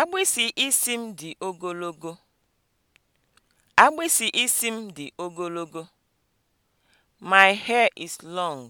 Agbịsị isi m dị ogologo. Agbịsị isi m dị ogologo. My hair is long.